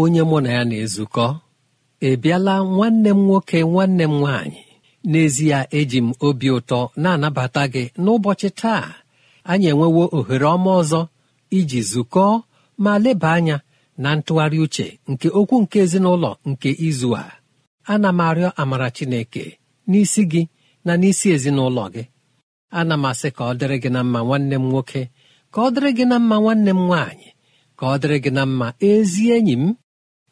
onye mụ na ya na-ezukọ ị bịala nwanne m nwoke nwanne m nwaanyị n'ezie eji m obi ụtọ na-anabata gị n'ụbọchị taa anyị enwewo ohere ọma ọzọ iji zukọọ ma leba anya na ntụgharị uche nke okwu nke ezinụlọ nke izu a ana m arịọ amara Chineke n'isi gị na n'isi ezinụlọ gị ana m asị ka ọ dịrị gị na mma nwanne m nwoke ka ọ dịrị gị na mma nwanne m nwaanyị ka ọ dịrị gị na mma ezi enyi m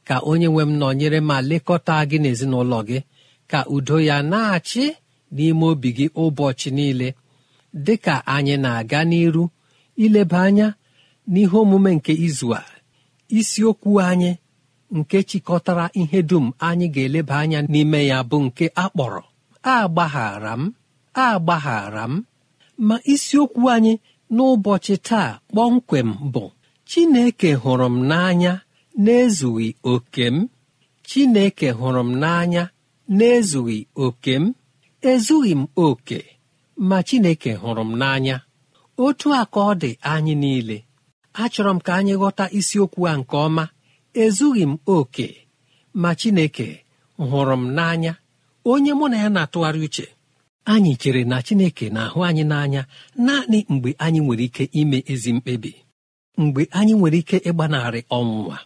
ka onye nwe m nọnyere ma lekọta gị n'ezinụlọ gị ka udo ya na-achị n'ime obi gị ụbọchị niile dị ka anyị na-aga n'iru ileba anya n'ihe omume nke izu a isiokwu anyị nke chịkọtara ihe dum anyị ga-eleba anya n'ime ya bụ nke akpọrọ agbaghara m agbaghara m ma isiokwu anyị n'ụbọchị taa kpọmkwem bụ Chineke hụrụ m n'anya n'ezughị oke m chineke hụrụ m n'anya n'ezughị oke m ezughị m oke ma chineke hụrụ m n'anya otu a ka ọ dị anyị niile achọrọ m ka anyị ghọta isiokwu a nke ọma ezughị m oke ma chineke hụrụ m n'anya onye mụ na ya na-atụgharị uche anyị chere na chineke na-ahụ anyị n'anya naanị mgbe anyị nwere ike ime ezi mkpebi mgbe anyị nwere ike ịgbanarị ọnwụnwa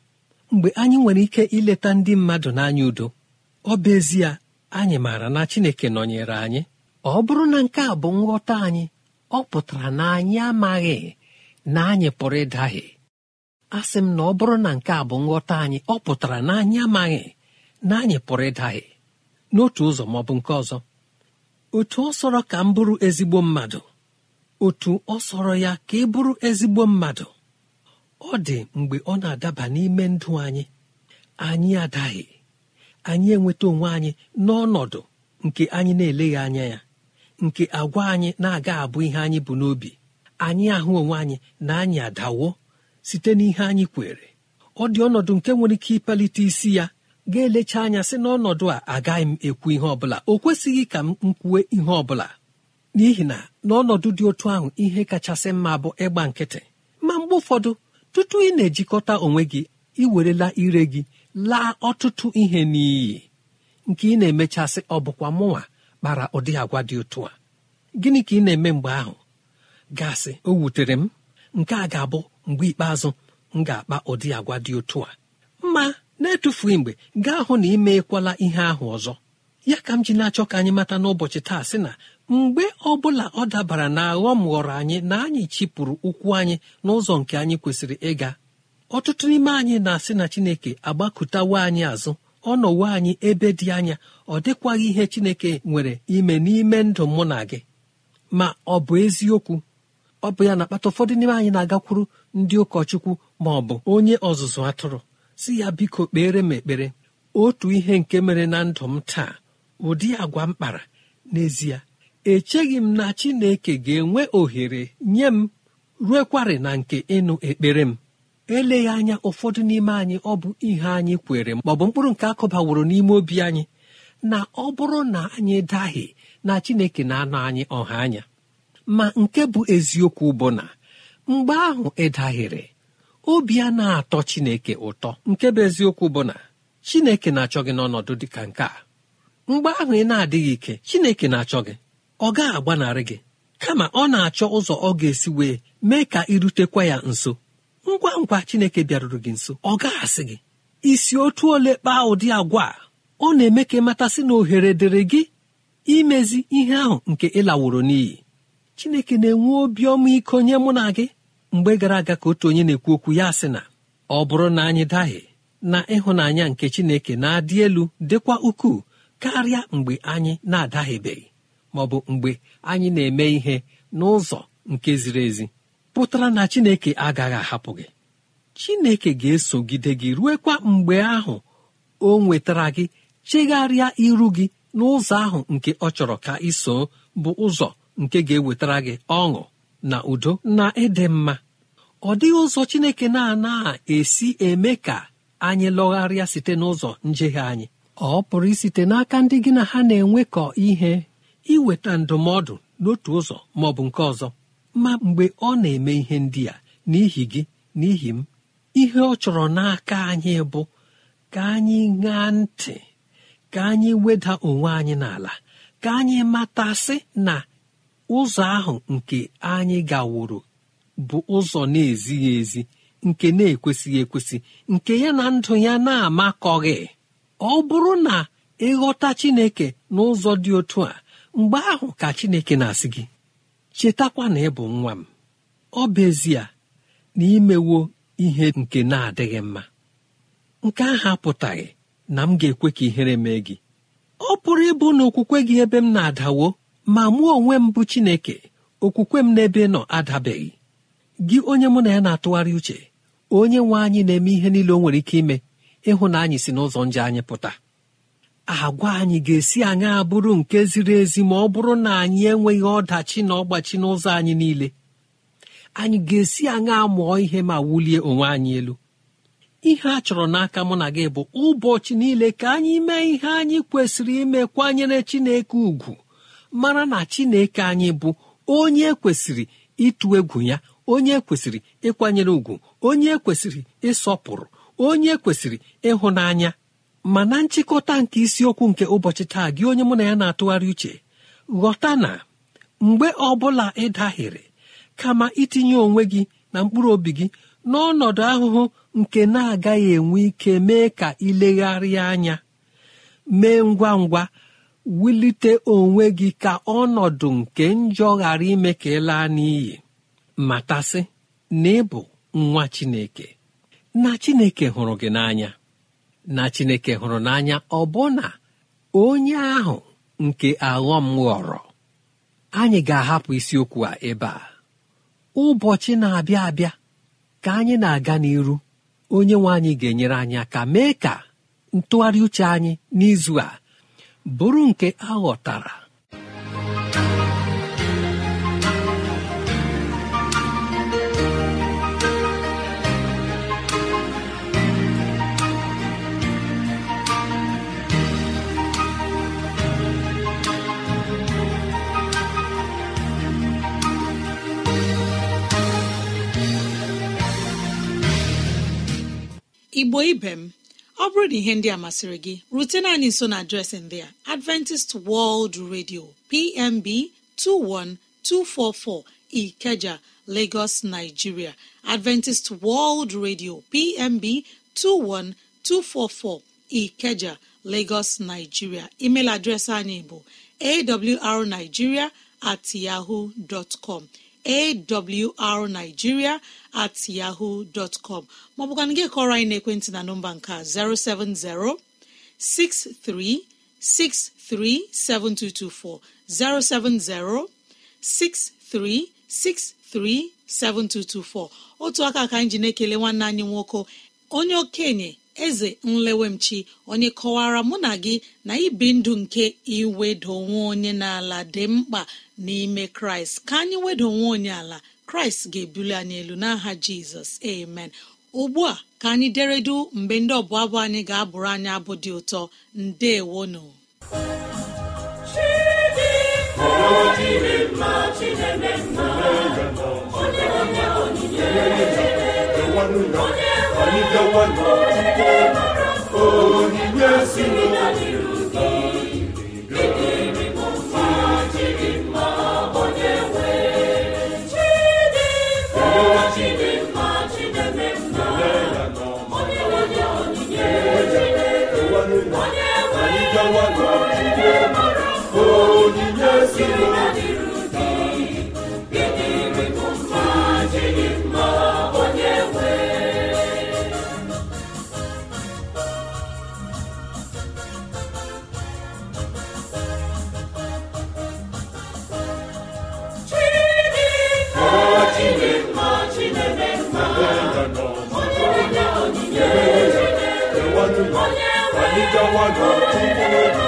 mgbe anyị nwere ike ileta ndị mmadụ n'anya udo ọ bụ ezie anyị maara na Chineke nọnyere anyị ọ bụrụ na nke a bụ nghọta anyị ọ pụtara na anyị amaghị na anyị pụrụ ịdaghị sị m na ọ bụrụ na nke a bụ nghọta anyị ọ pụtara na anyị amaghị na anyị pụrụ ịdaghị n'otu ụzọ ma ọ bụ nke ọzọ otu ọ sọrọ ka m bụrụ ezigbo mmadụ otu ọ sọrọ ya ka ị bụrụ ezigbo mmadụ ọ dị mgbe ọ na-adaba n'ime ndụ anyị anyị adaghị anyị enweta onwe anyị n'ọnọdụ nke anyị na-eleghị anya ya nke agwa anyị na-aga abụ ihe anyị bụ n'obi anyị ahụ onwe anyị na anyị adawo site n'ihe anyị kwere ọ dị ọnọdụ nke nwere ike ịpalite isi ya ga-elecha anya sị n'ọnọdụ a agaghị m ekwu ihe ọbụla o kwesịghị ka m kwue ihe ọbụla n'ihi na n'ọnọdụ dị otu ahụ ihe kachasị mma bụ ịgba nkịtị ma mgbe ụfọdụ Ọtụtụ ị na-ejikọta onwe gị ị werela ire gị laa ọtụtụ ihe n'iyi nke ị na-emechasị ọ bụkwa mụnwa kpara ụdị agwa dị otu a gịnị ka ị na-eme mgbe ahụ gasị o wutere m nke a ga-abụ mgbe ikpeazụ m ga-akpa ụdị agwa dị otu a Mma na-etufu mgbe gaa hụ na ị meekwala ihe ahụ ọzọ ya ka m ji na-achọ ka anyị mata n'ụbọchị taa sị na mgbe ọbụla ọ dabara na aghọm ghọrọ anyị na anyị chịpụrụ ụkwụ anyị n'ụzọ nke anyị kwesịrị ịga ọtụtụ n'ime anyị na-asị na chineke agbakụtawo anyị azụ ọ nọwo anyị ebe dị anya ọ dịkwaghị ihe chineke nwere ime n'ime ndụ mụ na gị ma ọ bụ eziokwu ọ bụ ya na-akpata ụfọdụ n'ime anyị na-agakwuru ndị ụkọchukwu ma ọ bụ onye ọzụzụ atụrụ si ya biko kpere m ekpere otu ihe nke mere na ndụ m taa ụdị agwa m kpara n'ezie echeghị m na Chineke ga-enwe ohere nye m ruekwarị na nke ịnụ ekpere m eleghị anya ụfọdụ n'ime anyị ọ bụ ihe anyị kwere m ọ mkpụrụ nke akụbaworo n'ime obi anyị na ọ bụrụ na anyị daghị na Chineke na-anọ anyị ọha anya ma nke bụ eziokwu bụ na mgbe ahụ ị daghịrị obi a na-atọ Chineke ụtọ nke bụ eziokwu bụ na Chineke na-achọ gị n'ọnọdụ dị ka nke a mgbe ahụ ị na-adịghị ike Chineke na-achọ gị ọ gaghị agbanarị gị kama ọ na-achọ ụzọ ọ ga-esi wee mee ka irutekwa ya nso ngwa ngwa Chineke bịaruru gị nso ọ asị gị isi otu ole kpaa ụdị agwa a ọ na-eme ka ịmatasị na ohere dịrị gị imezi ihe ahụ nke ịlaworo n'iyi Chineke na-enwe obi ọma iko nye mụ na gị mgbe gara aga ka otu onye na-ekwu okwu ya sị na ọ bụrụ na anyị daghị na ịhụnanya nke Chineke na-adị elu dịkwa ukwuu karịa mgbe anyị na-adaghịbeghị Ọ bụ mgbe anyị na-eme ihe n'ụzọ nke ziri ezi pụtara na chineke agaghị ahapụ gị chineke ga-esogide gị ruekwa mgbe ahụ o nwetara gị chegharịa iru gị n'ụzọ ahụ nke ọ chọrọ ka iso bụ ụzọ nke ga-ewetara gị ọṅụ na udo na ịdị mma ọ dịghị ụzọ chineke na ana esi eme ka anyị lọgharịa site n'ụzọ njehie anyị ọ pụrụ isite n'aka ndị gị na ha na-enwekọ ihe iweta ndụmọdụ n'otu ụzọ ma ọ bụ nke ọzọ ma mgbe ọ na-eme ihe ndị a n'ihi gị n'ihi m ihe ọ chọrọ n'aka anyị bụ ka anyị ṅaa ntị ka anyị weda onwe anyị n'ala ka anyị matasị na ụzọ ahụ nke anyị gaworo bụ ụzọ na-ezighị ezi nke na-ekwesịghị ekwesị nke ya na ndụ ya na-amakọghị ọ bụrụ na ịghọta chineke n'ụzọ dị otu a mgbe ahụ ka chineke na-asị gị chetakwa na ị bụ nwa m ọ bụ ezie na imewo ihe nke na-adịghị mma nke ahụ apụtaghị na m ga-ekwe ka ihere mee gị ọ pụrụ ịbụ na okwukwe gị ebe m na-adawo ma mụ onwe m bụ chineke okwukwe m n'ebe nọ adabeghị gị onye mụ na ya na-atụgharị uche onye nwe anyị na-eme ihe niile o nwere ike ime ịhụ na anyị si n'ụzọ nje anyị pụta agwa anyị ga-esi anyị abụrụ nke ziri ezi ma ọ bụrụ na anyị enweghị ọdachi na ọgbachi n'ụzọ anyị niile anyị ga-esi anyị amụọ ihe ma wulie onwe anyị elu ihe a chọrọ n'aka mụ na gị bụ ụbọchị niile ka anyị mee ihe anyị kwesịrị ime kwanyere chineke ugwu mara na chineke anyị bụ onye kwesịrị ịtụ egwu ya onye kwesịrị ịkwanyere ugwu onye kwesịrị ịsọpụrụ onye kwesịrị ịhụnanya ma na nchịkọta nke isiokwu nke ụbọchị taa gị onye mụ na ya na-atụgharị uche ghọta na mgbe ọ bụla ị dahịrị kama itinye onwe gị na mkpụrụ obi gị n'ọnọdụ ahụhụ nke na-agaghị enwe ike mee ka ilegharịa anya mee ngwa ngwa wulite onwe gị ka ọnọdụ nke njọ ghara ime ka ị laa n'iyi matasị na ịbụ nwa chineke na chineke hụrụ gị n'anya na chineke hụrụ n'anya ọ ọbụna onye ahụ nke aghọm ghọrọ anyị ga-ahapụ isiokwu a ebe a ụbọchị na-abịa abịa ka anyị na-aga n'iru onye nwe anyị ga-enyere anyị ka mee ka ntụgharị uche anyị n'izu a bụrụ nke aghọtara igbo ibe m ọ bụrụ na ihe ndị a masịrị gị rutena anyị nso na adreesị dị a adventist world radio pmb 21244 ikeja lagos nigeria adventist world radio pmb 21244 ikeja lagos nigeria email adreesị anyị bụ awrnigiria at yahoo dọtcom awrnigiria at yahoo dọtcọm maọbụkwana gị kọrọ anyị n'ekwentị na nọmba nke 070 7224 070 7224 otu aka ka anyị ji na-ekele nwanne anyị nwoke onye okenye eze nlewemchi onye kọwara mụ na gị na ibi ndụ nke iwedo nwe onye n'ala dị mkpa n'ime kraịst ka anyị wedo nwe onye ala kraịst ga-ebuli anyị elu n'aha jizọs amen ugbu a ka anyị deredu mgbe ndị ọbụ abụ anyị ga-abụrụ anyị abụ dị ụtọ ndewonu onye ike nwanne ọtụtụ onye si n'ụwa Yawada, Tupu Ego.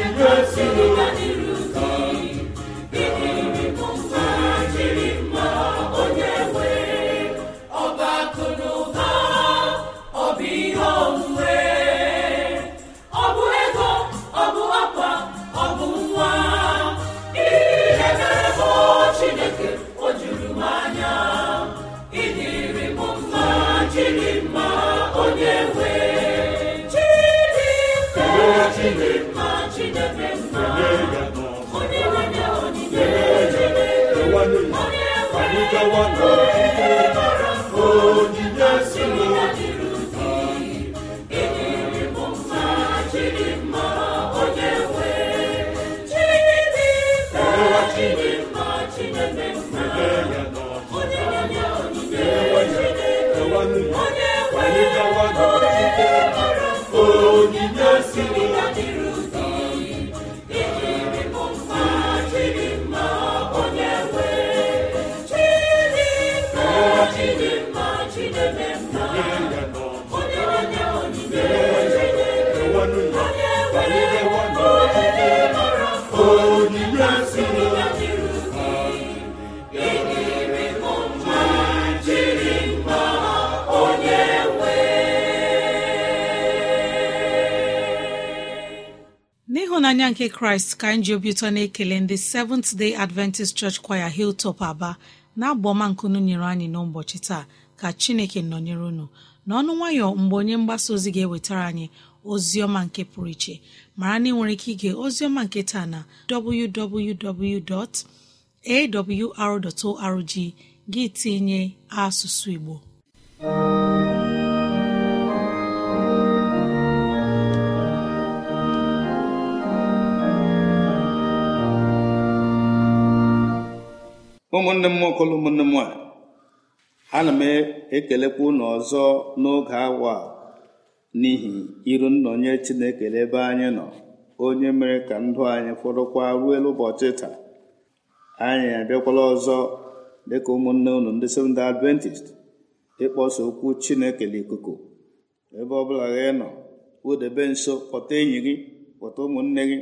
nke n'ịhụnanya nke kraịst ka anyị ji obi ụtọ na-ekele ndị seventh day adventist church choir hiltop aba na-abụ nkunu nyere anyị n'ụbọchị taa ka chineke nọnyere unu n'ọnụ nwayọ mgbe onye mgbasa ozi ga-ewetara anyị ozi ọma nke pụrụ iche mara na ị nwere ike ige ozi ọma nke taa na www.awr.org gị tinye asụsụ igbo ụmụnne m nwokola ụmụnne m nwanyị ana m ekelekwa unu ọzọ n'oge awa n'ihi iru nnọnye chineke ebe anyị nọ onye mere ka ndụ anyị fọdụkwa ruo ụbọchị taa anyị abịakwala ọzọ dịka ụmụnne unu ndị Seventh Adventist ịkpọsa okwu chineke n'ikuku ebe ọbụla gị nọ wudebe nso kpọta enyi gị kpọta ụmụnne gị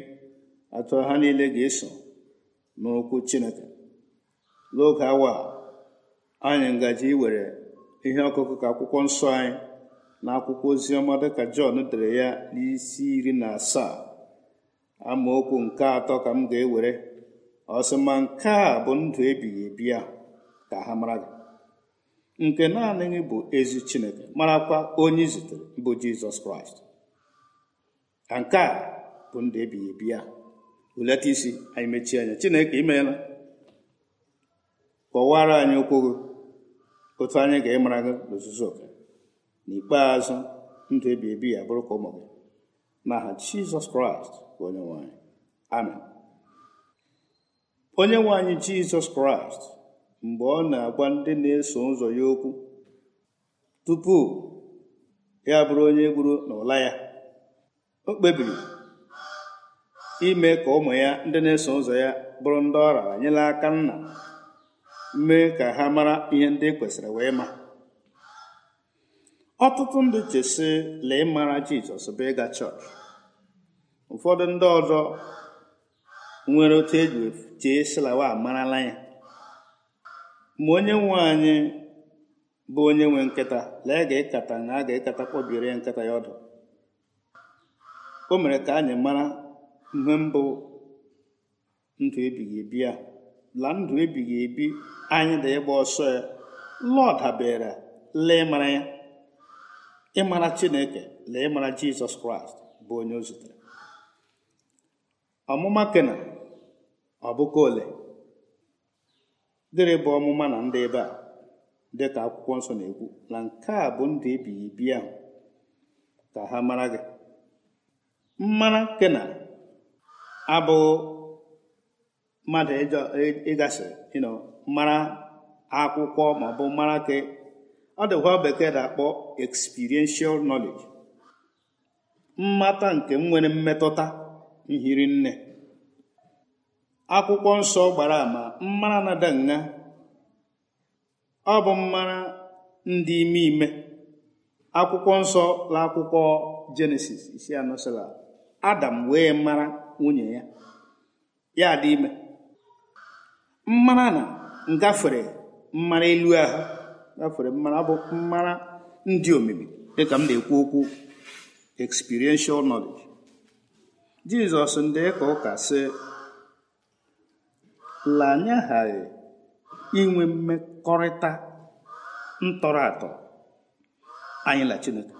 atụ ha niile ga-eso n'okwu chineke n'oge awa anyị ngaji iwere ihe ọkụkụ ka akwụkwọ nsọ anyị na akwụkwọ oziọma dịka Jọn dere ya n'isi iri na asaa amaokwu nke atọ ka m ga-ewere ọsịma ma nke a bụ ndụ ebighị ebi a ka ha mara gị nke naanị gị bụ ezi Chineke marakwa onye zutere bụ Jizọs Kraịst ka nke a bụ ndụ ebighị ebi a hulata isi anyị mechie anya Chineke imeela kọwara anyị okwu gị otu anyị ga-ịmara gị n'ozuzu oke n'ikpeazụ ndụ ebi ebi ya bụrụ ka ụmụ gị n'aha jizọs kraịst onye nwe anyị amen onye nwe anyị jizọs kraịst mgbe ọ na-agwa ndị na-eso ụzọ ya okwu tupu ya bụrụ onye gburu n'ụla ya o kpebiri ime ka ụmụ ya ndị na-eso ụzọ ya bụrụ ndị ọ raara nyela aka nna mee ka ha mara ihe ndị e kwesịrị wee ma ọtụtụ ndị chesi lee mara jizọs bụ ịga chọọchị ụfọdụ ndị ọzọ nwere otu eji chee silawa amarala ya ma onye nwe anyị bụ onye nwe nkịta lee ga ịkata na a ga-ekata kpọbiere ya nkịta ya ọdụ o mere ka anyị mara ihe mbụ ndụ ebighị ebi a. la ndụ ebighị ebi anyị dị ịgba ọsọ ya lọọ dabere lee ya ịmara chineke lee ịmara jizọs kraịst bụ onye o zutere ọmụma kena ọbụka ole dịrị bụ ọmụma na ndị ebe a ka akwụkwọ nsọ na-ekwu na nke a bụ ndụ ebighị ebi ahụ ka ha mara gị mmara kena abụghị mmadụ ịgasị mara akwụkwọ maọbụ mara ka ọ dịkwa bekee na-akpọ experiential knowledge mmata nke nwere mmetụta nhiri nne akwụkwọ nsọ gbara ama mmara na ọ bụ mmara ndị ime ime akwụkwọ nsọ la akwụkwọ jenesis isi anọ adam wee mara nwunye ya ya dị ime mmara na ngafere mmara elu ahụ gafere bụ mmara ndị omimi dịka m na-ekwu okwu experiential knowledge jizọs ndị ka ụka sị la e inwe mmekọrịta ntọrọ atọ anyị na chineke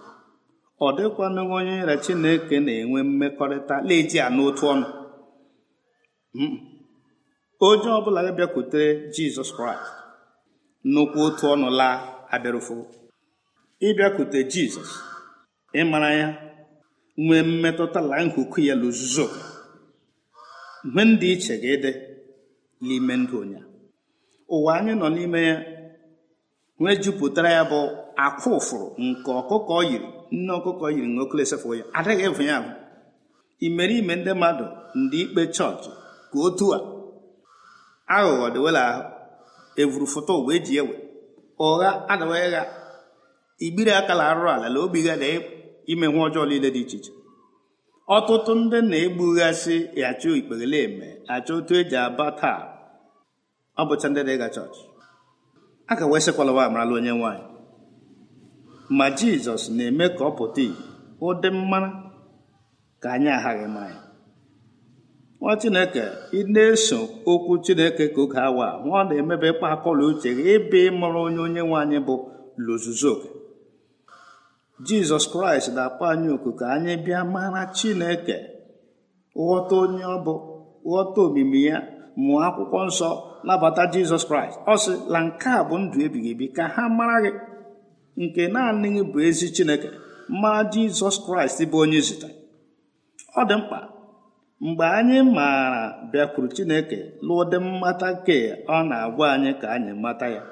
ọ na onye na chineke na-enwe mmekọrịta na-eji anụ otu ọnụ hmm. onye ọbụla ya bịakwutere jizọs kraịst nnukwu otu ọnụ laa abịarụfo ịbịakwute jizọs ịmara ya nwee mmetụta la nkuku ya luzuzo mgbe ndị iche gị dị n'ime ndụ ụnya ụwa anyị nọ n'ime ya nwee jupụtara ya bụ akwa ụfụrụ nke ọkụkọ yiri nne ọkụkọ yiri na okele ya adịghị ịvụ ya ahụ imere ime ndị mmadụ ndị ikpe chọọchị ka otu a aghụghọ dịwela ahụ evuru foto wee ji ewe ụgha adịwaghị ha igbiri aka la arụrụ ala la obi ha na e- ime nwa ọjọọ niile dị iche iche ọtụtụ ndị na-egbughasị achụ ikpegele eme achọ otu eji aba taa ọ bụcha ndị dịga ịga chọọchị a ka wee sịkwalawa amarala onye nwanyị ma jizọs na-eme ka ọ pụta ihe ụdị mmara ka anyị aghaghị mmanya nwa chineke ị na-eso okwu chineke ka oge awa nwa ọ na-emebe ịkpa akọla uche gị ịbụ ịmụrụ onye onye nwe anyị bụ luzuzoke jizọs kraịst na-akpọ anyị oku ka anyị bịa mara chineke ghọta onye ọ bụ ghọta omimi ya mụọ akwụkwọ nsọ nabata jizọs kraịst ọ sị na nke a bụ ndụ ebighị ebi ka ha mara gị nke naanị gị bụ ezi chineke mara jizọs kraịst bụ onye zụta ọ dị mkpa mgbe anyị maara bịakwuru chineke lụdị mmata nke ọ na-agwa anyị ka anyị mata ya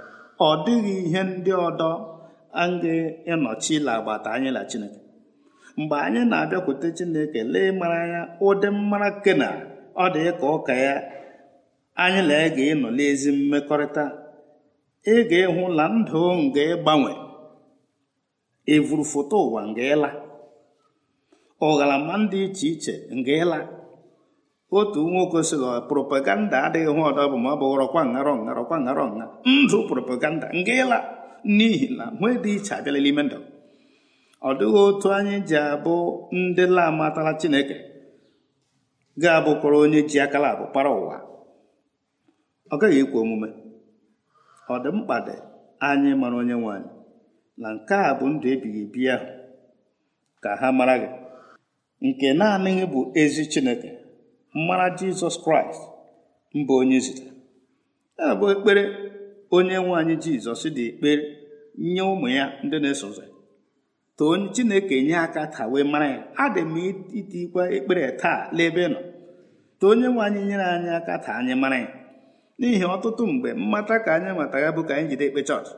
ọ dịghị ihe ndị ọdọ aga ịnọchi ila agbata anyị la chineke mgbe anyị na-abịakwute chineke lee mara ya ụdị mmara na ọ dị ka ụka ya anyị na ga ịnọ n'ezi mmekọrịta ị ga-ịhụ na ndụ nga ịgbanwe ịvụrụ foto ụwa nga ịla ụghalama dị iche iche nga ịla otu nwoke sịrị propaganda adịghị hụ ọdọ bụ ma ọ bụghọrọkwa ngarọ ngarọkwa ngarọ nha ndụ propaganda nga ịla n'ihi na nwee dị iche abịala n'ime ndụ ọ dịghị otu anyị ji abụ ndị lamatara chineke ga-abụkwara onye ji akala abụ kpara ụwa ọ gaghị ekwe omume ọ dị mkpa dị anyị mara onye nwanyị na nke a bụ ndụ ebighị ebi ahụ ka ha mara gị nke naanị bụ ezi chineke mara jizọs kraịst mba onye zitere ya bụ ekpere onye nwe anyị jizọs dị ekpere nye ụmụ ya ndị na-eso ụzọ too chineke nye aka ta wee mara ya adị m itikwa ekpere taa n'ebe nọ too onye nwe anyị nyere anyị aka taa anyị mara ya n'ihi ọtụtụ mgbe mmata ka anyị matara bụ ka anyị jide ekpe chọọchị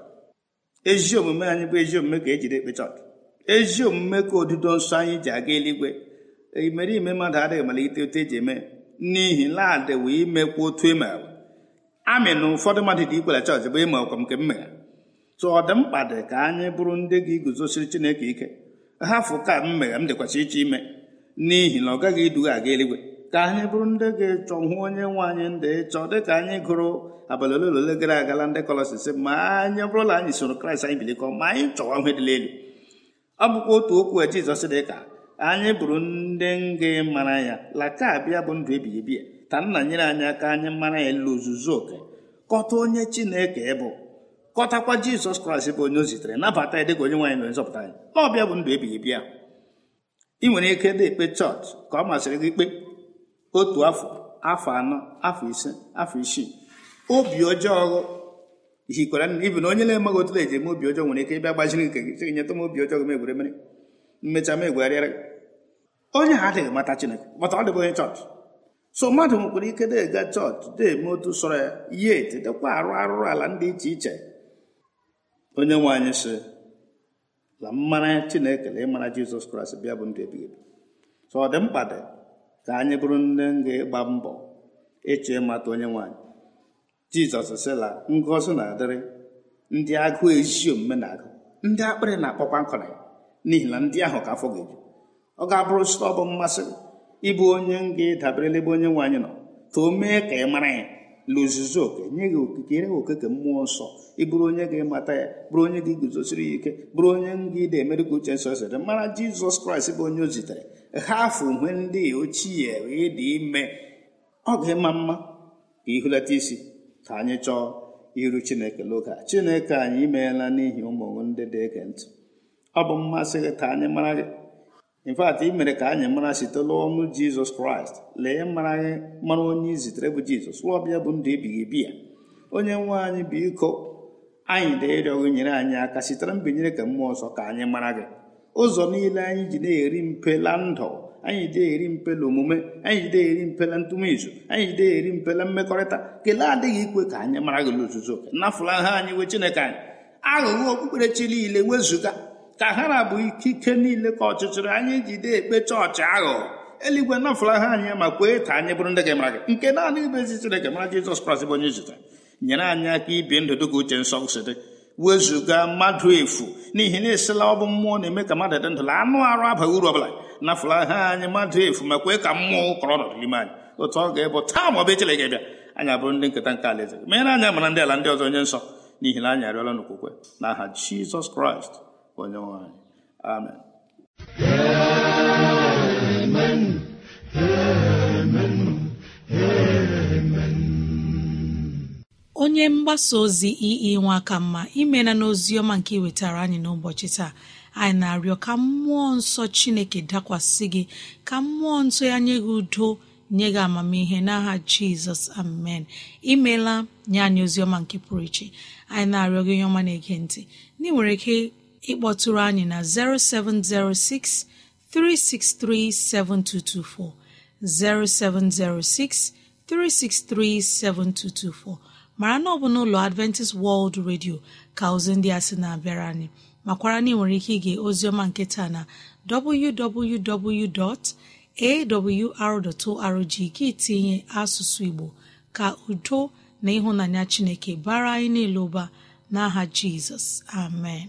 ezi omume anyị bụ ezi omume ka ejide ekpe chọọchị ezi omume ka odido nsọ anyị ji aga eluigwe imerime mmadụ adịghị malite otu eji eme n'ihi nladịwa imekwu otu ịma amị na ụfọdụ mmadụ dị ikwere chọọchị bụ ịma ọkwa nke m tụ ọ dị mkpa dị ka anyị bụrụ ndị gị guzosiri chineke ike hafụ ka m m dịkwacha iche ime n'ihi na ọ gaghị iduga aga eluigwe ka anyị bụrụ ndị gị echọ hụ onye nwe anyị ndị ịchọ dị ka anyị gụrụ abalị ole ole gara agala ndị kọlọsis ma anyị bụrụla anyị soro kraịst anyị bilikọ ma anyị chọwa ihe elu ọ bụkwa otu okwu jizọs dị ka anyị bụrụ ndị nga mara ya laka bịa bụ ndụ ebighị ebi ta nna nyere anyị aka anyị mara ya ilu ozuzu oke kọta onye chineke bụ kọtakwa jizọs kraịst bụ onye o zitere nabata ya dịka onye nwaanyị na nzọpụta anyị na ọbịa bụ ndụ ebighị ebi ahụ ị nwere ike dị ekpe chọọchị ka ọ masịrị gị ikpe otu afọ afọ anọ afọ ise afọ isii obi ọjọọ hikwara ibi na onye na-emaghị otu eji eme obi ọjọọ nwere ike ịbịa gbaziri nke gị nyeta m obi ọjọọ m egwere mmecha m onye ha adịghị mata chineke mata ọ dịbụ onye chọọchị so mmadụ nwekwara ike na-ega chọọchị na-eme otu sọrọ ya ya etedekwa arụ arụrụ ala ndị iche iche onye nwe anyị sị la mmara chineke na ịmara jizọs kraịst bịa bụ ndị ebighị ebi so ọ dị mkpa dị ka anyị bụrụ nne ga-ịgba mbọ ịchọ ịmata onye nwanyị jizọs sila ngọzi na-adịrị ndị agụụ ezi omume na-agụ ndị akpịrị na-akpọkwa nkọrọ ya n'ihi na ndị ahụ ka afọ ga eji ọ ga-abụrụ site ọ bụ mmasị ịbụ onye m ga-edaberele ebe onye nwe anyị nọ ka o mee ka ị mara ya lụzuzu oke nye gị okike oke okike mmụọ nsọ ịbụrụ bụrụ onye ga-emata ya bụrụ onye ga-eguzosiri ya ike bụrụ onye nga ide emere ka uche nsọ sere mara jizọs kraịst bụ onye o zitere ha afọ uhe ndị ochie ịdị ime ọ ga-ịma mma ka ihulata isi ka anyị chọọ iru chineke n'oge chineke anyị imeela n'ihi ụmụ ndị dị ege ntị ọ bụ mmasị gị ka anyị mara gị infat ị mere ka anyị mara site n'ọnụ jizọs kraịst lee mara onye izitere bụ jizọs lụọbịa bụ ndụ ebighị ebi ya onye nwe anyị bụ iko anyị na-ịrịọ nyere anyị aka sitere mbinyere ka mmụọ ọsọ ka anyị mara gị ụzọ niile anyị ji na-eri mpela ndụ anyị ji na-eri mpela omume anyị ji na-eri mpela ntụmizu anyị ji na-eri mpela mmekọrịta kelee adịghị ikwe ka anyị mara gị n'ozuzu oke nafụla ha anyị wee chineke anyị aghụghọ okpukperechi niile wezụga ka ha na bụ ikike niile ka ọchịchịrị anyị jide ekpe chọọchị ahụ eluigwe nafụla ha anyị ma kwee ka anyị bụrụ ndị gị mara gị nke naanị ibe ezi Chineke mara Jizọs Kraịst bụ onye zụta nyere anyị aka ibi ndụ dịka uche nsọ si dị wezụga mmadụ efu n'ihi na esila ọ bụ mmụọ na-eme ka mmadụ dị ndụ la anụ arụ abaghị uru ọbụla nafụla ha anyị mmadụ efu ma kwee ka mmụọ ụkọrọ nọdụ n'ime anyị otu ọ ga-ebụ taa ma ọ bụ echere gị bịa anyị abụrụ ndị nketa nke alaeze mere anya mara ndị ala ndị ọzọ onye nsọ n'ihi na anyị arịọla n'okwukwe Jizọs Kraịst onyenwe anyị amen amen onye mgbasa ozi ii ka mma imela na oziọma nke iwetara anyị n'ụbọchị taa anyị na-arịọ ka mmụọ nsọ chineke dakwasị gị ka mmụọ nsọ ya nye gị udo nye gị amamihe n'aha jizọs amen imela nye anyị oziọma nke pụrụ iche anyị na-arịọ gị onye ọma na-ege ntị ndị nwere ike ịkpọtụrụ anyị na 0706 363 7224 0706 363 7224 mara na ọ bụ n'ụlọ Adventist World Radio ka ozi ndị a sị na-abịara anyị makwara na ị nwere ike ige ozioma nketa na www.awr.org gị tinye asụsụ Igbo ka udo na ịhụnanya Chineke bara anyị niile ụba n'aha Jizọs amen